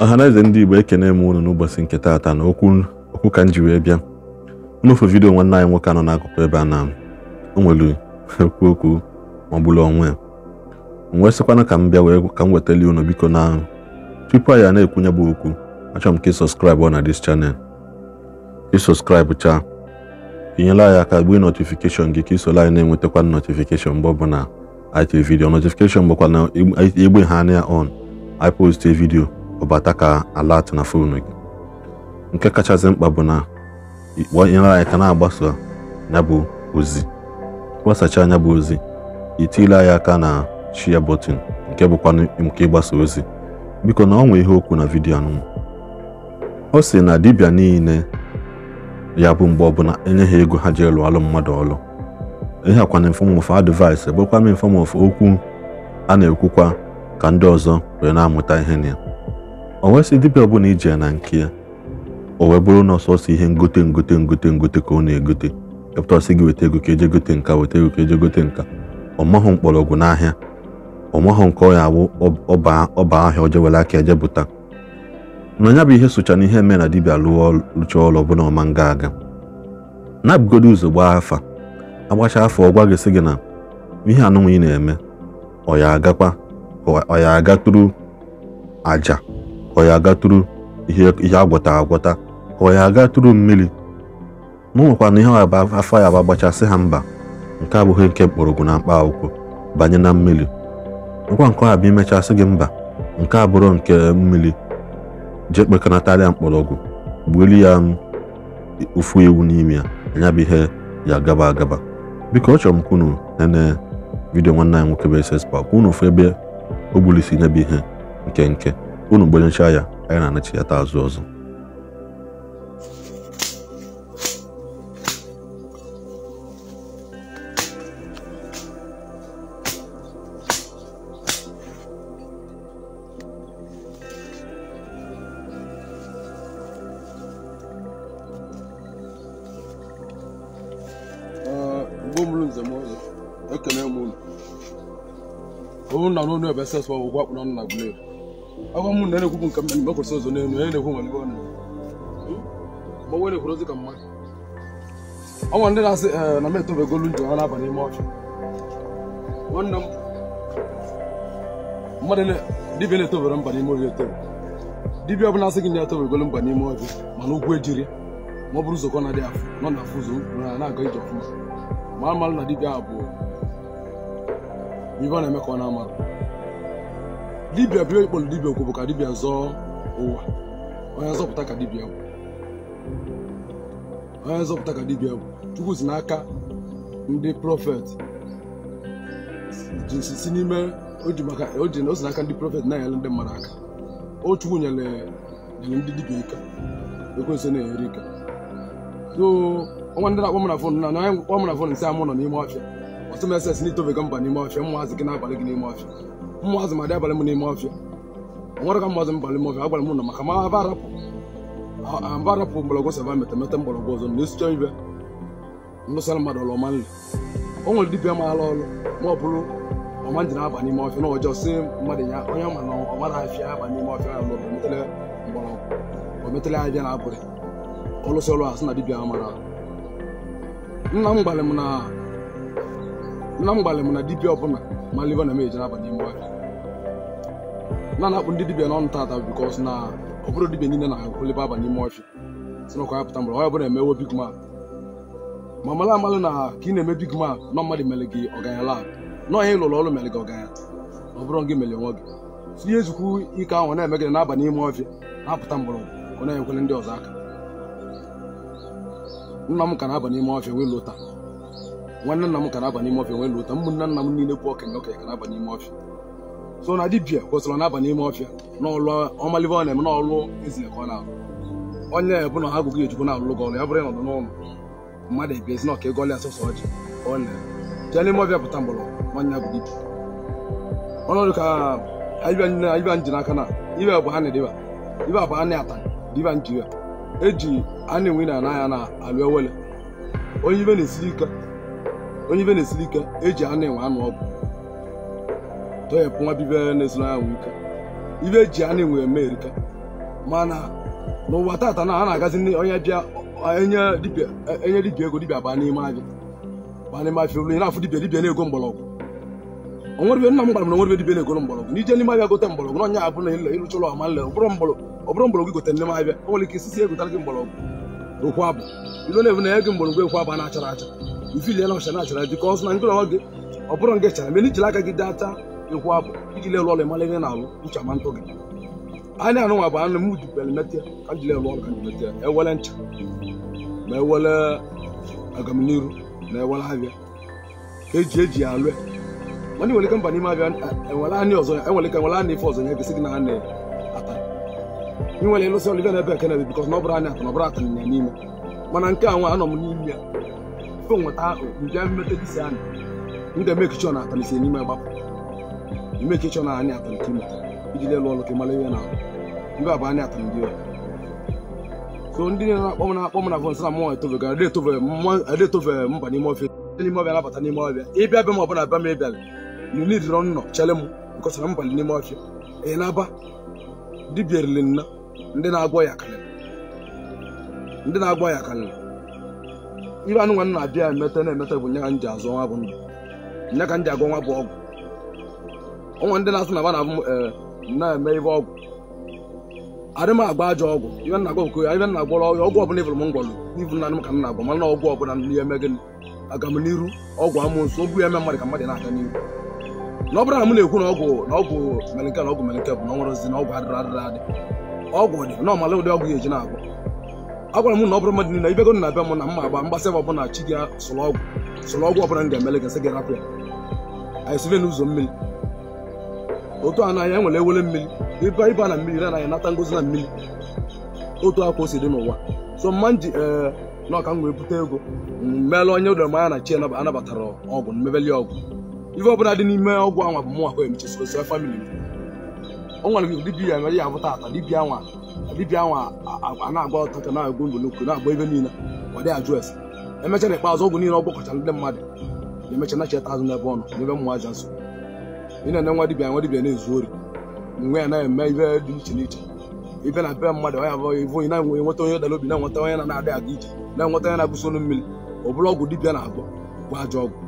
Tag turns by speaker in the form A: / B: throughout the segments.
A: ọhaneze ndị igbo ekene m unu n'ụbọchị nke taata na okwu ka m ji wee bịa nụfe vidio nwanne anyị nwoke nọ n'akụkụ ebe a na o nwere okwu ọ maọbụla onwe wee sịkwana ka m bịa wee ka m wetali unu biko na tupu anyị na-ekwunye bụ okwu achọrọ m ka ị sọskraịbụ na dis chanel ị chaa inyela anyị aka gbuo notifikeshọn gị ka isola anyị na-enwetakwa notifikeshọn mgbe ọbụla anyị tiri vidio notifikeshọn bụkwa na egbe ha anya on anyị poste vidio ọbata ka ala atụ na fonu gị nke kachasị mkpa bụ na ịkpọnyere anyị ka na agbaso ya bụ ozi gbasacha anya bụ ozi itile anya aka na shia bọtịn nke bụkwa nke ịgbasa ozi biko na ọ nwe ihe okwu na vidio anụnụ ọ sị na dibịa niile ya bụ mgbe ọbụla enye ha ego ha ji elụ alụ mmadụ ọlụ ihe akwana infọmọfụ advaịsị bụrụkwa m infọmọfụ okwu a na-ekwukwa ka ndị ọzọ wee na-amụta ihe na ya o nwesị dibịa bụla iji ya na nke ya o wee bụrụ na ọsọsọ ihe ngote ngote ngote ngote ka ọ na-egote epụta ọsị gị weta ego ka eje gote nka weta ego ka eje gote nka ọmahụ mkpọrọgwụ n'ahịa ọmahụ nke ọ ya awụ ọba ahịa ọje were aka eje bụta na ya bụ ihe socha na ihe mee na dibịa lụọ lụcha ọrụ ọbụla ọma nga aga na-abụgodo ụzọ gbaa afa agbacha afọ ọ gwa gị sị gị na ihe anụnwa ị na-eme ọ ya agakwa ọ ya aga tụrụ aja ọ ya agatụrụ ihe agwọta agwọta ọ ya agatụrụ mmiri ma nwekwana ihe afọ ya agbachasị ha mba nke abụghị nke mkpọrọgwụ na mkpa akwụkwọ banye na mmiri nkwa nke ọha bụ imechasị gị mba nke abụrụ nke mmiri jee kpekọnatarịa mkpọrọgwụ gbuelu ya um, ụfụ ewu n'ime ya anya bụ ihe ya gaba agaba biko ọ chọrọ m ka unu nene vidiyo nwanne anyị nwoke bụ ss park unu ofu ebe o gbulisi nyebe ihe nke nke unu gbanyechaa ya anyị na ya azụ ọzọ
B: ekene m unu unu na n'onu ebe sesụ akpụrụ nna gbuleru agwa hmm? eh, m na na-ekwukwu nke ụzọ n'elu onye na-ekwu nwere ebe ọ ma ekwuru mmadụ ọnwa ndị na-asị ee na m etobegolu ha na-aba n'ime nwanne m mmadụ na-etobere mba n'ime etobe ọbụla asị gị na etobegolu mba n'ime ọchụ mana ụgwọ ejiri ma ọ bụrụ ụzọkọ na-adịghị afụ nọ na afụ ụzọ na na-aga ije ọfụma ma na dibia abụọ ibe ọ na-eme ka ọ na-amarụ dibia bụ ịkpọrọ dibịa dibia bụ ka dibịa zọọ ụwa onye zọpụta ka dibia bụ onye zọpụta ka bụ chukwu si n'aka ndị prọfet si n'ime o na-enyere ndị mmadụ aka o chukwu nyere ndị dibịa ike ekwensị na-enyere ike so ndị na-akpọ mana fon na onye kpọ mana fon nsi amụ nọ n'ime gị n'ime ọfịa mmụọ ma dị abalị m n'ime ọfịa nwere ka mmụọ m balị m ọfịa agwara m na maka ma aba arapụ aba arapụ mgbọrọgwụ saba metemete mgbọrọgwụ ọzọ na esicha ibe ndụsara mmadụ ọlụ ọma nri o nwere dibịa maara ọrụ ma ọ bụrụ ọma ji na-aba n'ime ọfịa na ọjọọ si mmadụ ya onye ma na ọma na-afịa aba n'ime ọfịa ya lụrụ ometele mgbọrọgwụ ometele abịa na abụrị ọlụsị ọrụ sị na dibịa mara nna m gbalị m na na mgbalị m na dibịa ọbụla ma liva na emeje n'abalị mgbe na na-akpụ ndị dibịa n'ọnụ tata bikọs na ọ bụrụ dibịa niile na-akwụlibe abanye ime ọfịa si nakwa ya pụta mgbe e ma mara na ka ị na-eme big mmadụ mere gị ọganya la lụrụ ọrụ mere gị ọ bụrụ gị mere nwa gị ihe ezukwu ike ahụ na-eme gị n'abalị ime ọfịa na-apụta mgbọrọgwụ ọ na-enyekwere ndị ọzọ aka nna m ka na-aba n'ime wee lụta nwanne nna m ka na-aba n'ime ọfịa nwere ụta nna m niile bụ okenye okenye ka na-aba n'ime ọfịa so na dibia kwụsịrị na-aba n'ime ọfịa n'ọlụ ọmalibe ọ na-eme n'ọlụ ezile ka ọ na-alụ onye bụ na ha na-alụ ọrụ ya bụrụ ịnọdụ n'ụlọ mmadụ ebiezi na ọka ego ọlịa sọsọ ọjị na n'ime ọbịa pụta mgbọrọgwụ nwanne ya bụ dibia ọnọdụ ka n'aka na ibe bụ ha na ibe bụ ha na-ata diba njiria eji a enwe na anaghị na alụ ewele onye ibe na-esiri ike onye ibe na ka e ji anụ enwe anụ ọgwụ toyepụ nwa bibe na-esiri anwụ ike ibe eji anụ enwe eme erika mana n'ụwa tata na a na-agazi onye bịa enye dibia ego dibia baa n'ime ahịa baa n'ime afịa olu na-afụ dibia dibia na-ego mgbọrọgwụ onwere nna m gwara m na onwere dibịa na-ego mgbọrọgwụ n'ije n'ime ahịa n'ọnya abụ na ịrụcha ụlọ ọma nle ọbụrụ mgbọrọgwụ gote n'ime ahịa o nwere ike egotara gị mgbọrọgwụ okwu abụ na-ebu na acha ifiliela ọchana achara dịka ọzụ na ndị ọrụ gị ọ bụrụ nke chara mere ijiri aka gị dị ata ekwu abụ iji lerụ ọrụ ịmara ihe na-alụ ncha ma ntụ gị anya anụnwa bụ anụ m dupere metịa ka m jiri ọrụ ka metịa ewele ncha ma ewele agamniru na ewele abịa ka eji eji ya mana nwere ike mba n'ime abịa enwere ọzọ ya enwere ike nwere anị ife ọzọ ya gị na ata ị nwere mana nke a anọ m n'ime ya go nweta okpu bịa metadisi anyị m ga-emeke chọ na atalisi n'ime gbapụ chọ na anyị atalite imeta iji lelụ ọlụ ka ihe na ibe abụ anyị atara ndị so ndị na-akpọ m na-akpọ m na vọnsị na mmụọ etofegara adetofe mba n'ime n'ime ọbịa nabata n'ime ọbịa ịbịa bịa ma ọ bịa ma ị bịara nidịrọ nnọ chere m nkọsara mbalị n'ime ọfịa ị na-aba nna ndị na-agwọ ya karịrị ndị na-agwọ ya karịrị ibe anụ nwa na-abịa emete na-emete bụ nye ka m azụ nwa bụ ndụ nye ka m nwa bụ ọgwụ ọnwa ndị na asị na ba na-abụ e, eme ibe ọgwụ adị m agba ajọ ọgwụ ibe nna agba ọgụ ibe na-agwọrọ ọgwụ ọbụla ịbụrụ m ngwọrụ n'ibu na anụ ka m na mana ọgwụ n'ihe eme gịnị aga m n'iru ọgwụ amụ nso eme mmadụ ka na-aga n'iru na ọ bụrụ na m na-ekwu na ọgwụ na ọgwụ melike na ọgwụ melike bụ na ọ na ọgwụ adịrị adị ọgwụ dị na ọmala ụdị ọgwụ ya eji na-agwụ a gwara m na ọ bụrụ mmadụ niile ibego na be m na mma agba mgbasa ebe ọbụla chi gị sụrụ ọgwụ sụrụ ọgwụ ọbụla m ga-emele gị sị gị rapụ ya anyị sibe n'ụzọ mmiri otu a n'anya e nwere ewele mmiri ịba ịba na mmiri na anaghị nata ngozi na mmiri otu akwa o si dị n'ụwa so mma m ji ee na ọka m wee bute ego meela onye ụdọrọ mmanya na chi anabatara ọgwụ mmebeli ọgwụ ife ọ ọbụla dị n'ime ọgwụ anwa bụ mụnwa kwa emechesikosi famili m o nwere nke dibia ya mere ya bụ tata dibia nwa dibia nwa a na-agba ọtacha na-agụ ngolokwu na-agba ebe niile ọ dị ajụ ese emechara ikpeazụ ọgwụ niile ọ gwakọchara ndị mmadụ na-emecha nacheta azụ n'ebe ọnụ n'ebe mmụọ aja nso ị na-ene nwa dibia nwa na-ezu ori nwe ya na-eme ibe dị iche n'iche ibe na be mmadụ ya bụ ivo ị na-enwe enweta onye dara obi na-enweta onye na-adị aga ije na-enweta onye na-abụsi olu mmiri ọ bụrụ ọgwụ dibia na-agwọ bụ ajọ ọgwụ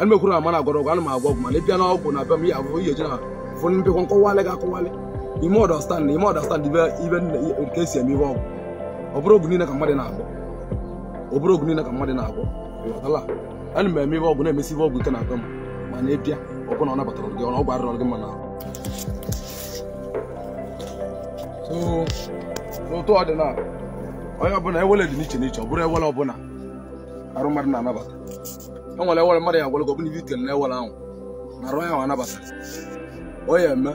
B: ana m ekwuru na m na-agwọrọ ọgwụ m agwọ ọgwụ mana ịbịa na na be ụfọdụ mbikwa nkọwalị gị akọwalị ime ọdọstand ime ọdọstand ibe nke esi eme ihe ọgwụ ọbụrụ oge niile ka mmadụ na-agwọ ọbụrụ oge niile ka mmadụ na-agwọ ịghọtala m eme ihe ọgwụ na-emesi ihe ọgwụ ike na-akọ m ma na-epịa ọ bụrụ na ọ na ọ bụrụ ewele ọbụla na e nwere e e e mmadụ ya ahụ na arụ ahụ anabata onye eme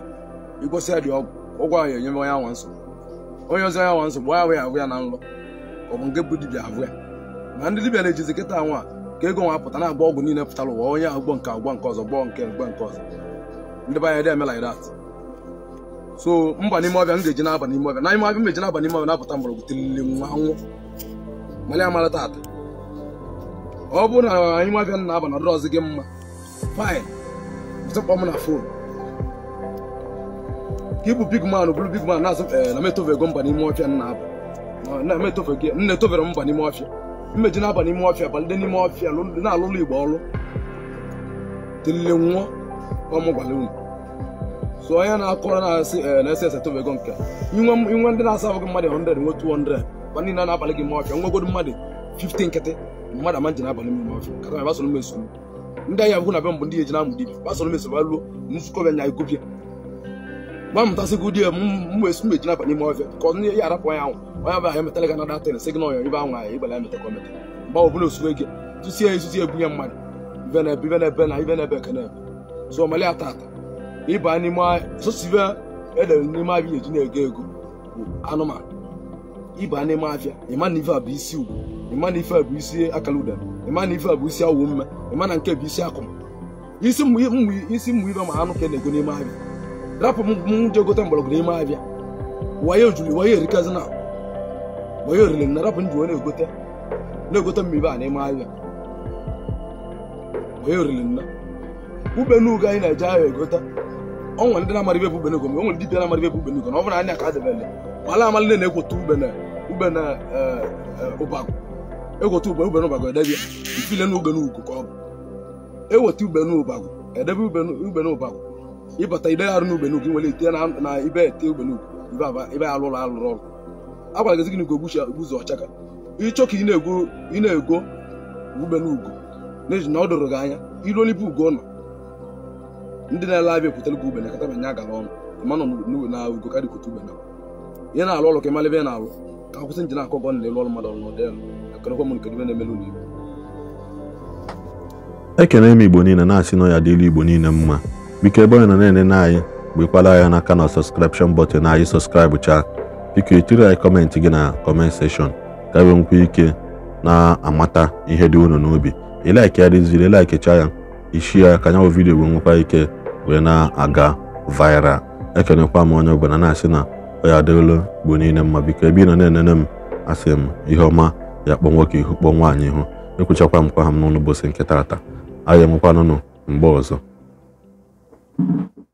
B: igosi ya dị ọgwụ ụgwọ ahụ onye anwa nsogbu onye ọzọ ya nwa nsogbu ahụ ya ahụ ya na nlọ ọ bụ nke bụ dibịa ahụ ya ma ndị dibịa na-ejizi kịta nwa ka ego nwa pụta na-agba ọgwụ niile pụtara ụwa onye ahụ gbọ nke agwọ nke ọzọ gbọ nke mgbe nke ọzọ ndị be anyị eme like so mba n'ime ọbịa m ga-eji n'aba n'ime ọbịa na ọbịa m eji n'aba n'ime ọbịa napụta mgbọrọgwụ tilili nwa nwụ ọ bụrụ na na-aba na gị m na fon ka ịbụ big man bụrụ big man na-azụ eh, na m mba n'ime ọfịa nna etofere mba n'ime ọfịa mmeji na-aba n'ime ọfịa balide n'ime ọfịa na-alụlụ igbo ọlụ tilile nwụọ ọmụgwara unu so onye na-akọrọ na-asị eh, na ese ese etofego nke inwe ndị na-asa ahụ mmadụ 100 nwe 200 ba niile na-abalị gị na ndị na be mbụ ndị eji na-amụ dibia basoro ba nzukọ bịa nya nwa mụtasịgo di ya m wee si meji naba n'ime ọfịa ka ọnụ ya arapụ ya anwụ onye abụghị emetala gana datịn sị gị na ọyọ ibe anwụ ya ibala emetakọ emeta mgbe ọ bụla osue gị tụsie ezuzi ebunye mmadụ na ata ata ịba n'ime sosibe e n'ime eji na-ego ego bụ n'ime afịa na ife bụ isi ugwu ịma na a bụ isi akala ụda ịma na ife bụ isi awụ mme ịma na nke bụ isi akụm isi mmụ ibe ma anụ ka e na-ego n'ime ahịa rapụ m je gote mgbọrọgwụ n'ime abịa wayo juru wayo erikazi na wayo oriri na rapụ nji na-egote na-egote mmibe a n'ime ahịa wayo oriri na ube n'ugo anyị na-eje ahịa egote onwere ndị na-amara ibe bụ ube n'ugo onwere ndị na-amara ibe bụ ube n'ugo na ọ bụrụ anya ka adịbele mala amala na na-egwota ube na ube na e, e, ụbagụ egwota ube ube n'ụbagụ edebe ifile n'ugbe n'ugo ka ọ bụ eweta ube n'ụbagụ edebe ube n'ụbagụ ịbata ibe ya arụ n'Ubenugwu nwere ite na ibe ete Ubenugwu ibe ya alụrụ alụrụ ọrụ agwara gị gị na ụzọ ọchaka ịchọ ka ị na-ego ugbenugo n'ihi na ọ doro gị anya iruo n'ibe ugo nọ ndị na-ele abịa ekwutere gị ubene kata banye agara ọnụ ma nọ na ugo karị kwute ubene ihe na-alụ ọrụ ka ịmara ebe ị na-alụ ka akwụsị nji na-akọ gọ na-elu ọrụ mmadụ ọrụ n'ọdịnakọrọkwa m nke ibe na-emelu n'igbo
A: ekene m igbo niile na-asị nọ ya dịlu igbo niile mma biko ebe onye nọ na-enene anyị gbekwala anya n'aka na sọskripshọn bọtịn na anyị sọskraịbụ chaa biko etiri anyị kọmentị gị na kọment seshọn ka enwe nkwa ike na-amata ihe dị unu n'obi ilaiki ya dịziri chaa ya ishi ya ka nyanwụ vidiyo wee nwekwa ike wee na-aga viral ekenekwa m onye ọbụla na-asị na ya adịolu bụ niile mma biko ebe ị nọ na-enene m asị m ihe ọma ya kpọ nwoke ihu kpọ nwaanyị ihu ekwuchakwa m kwa ha m n'ụlọ ụbọchị nke taata anyị enwekwanụnụ mgbe ọzọ Thank you.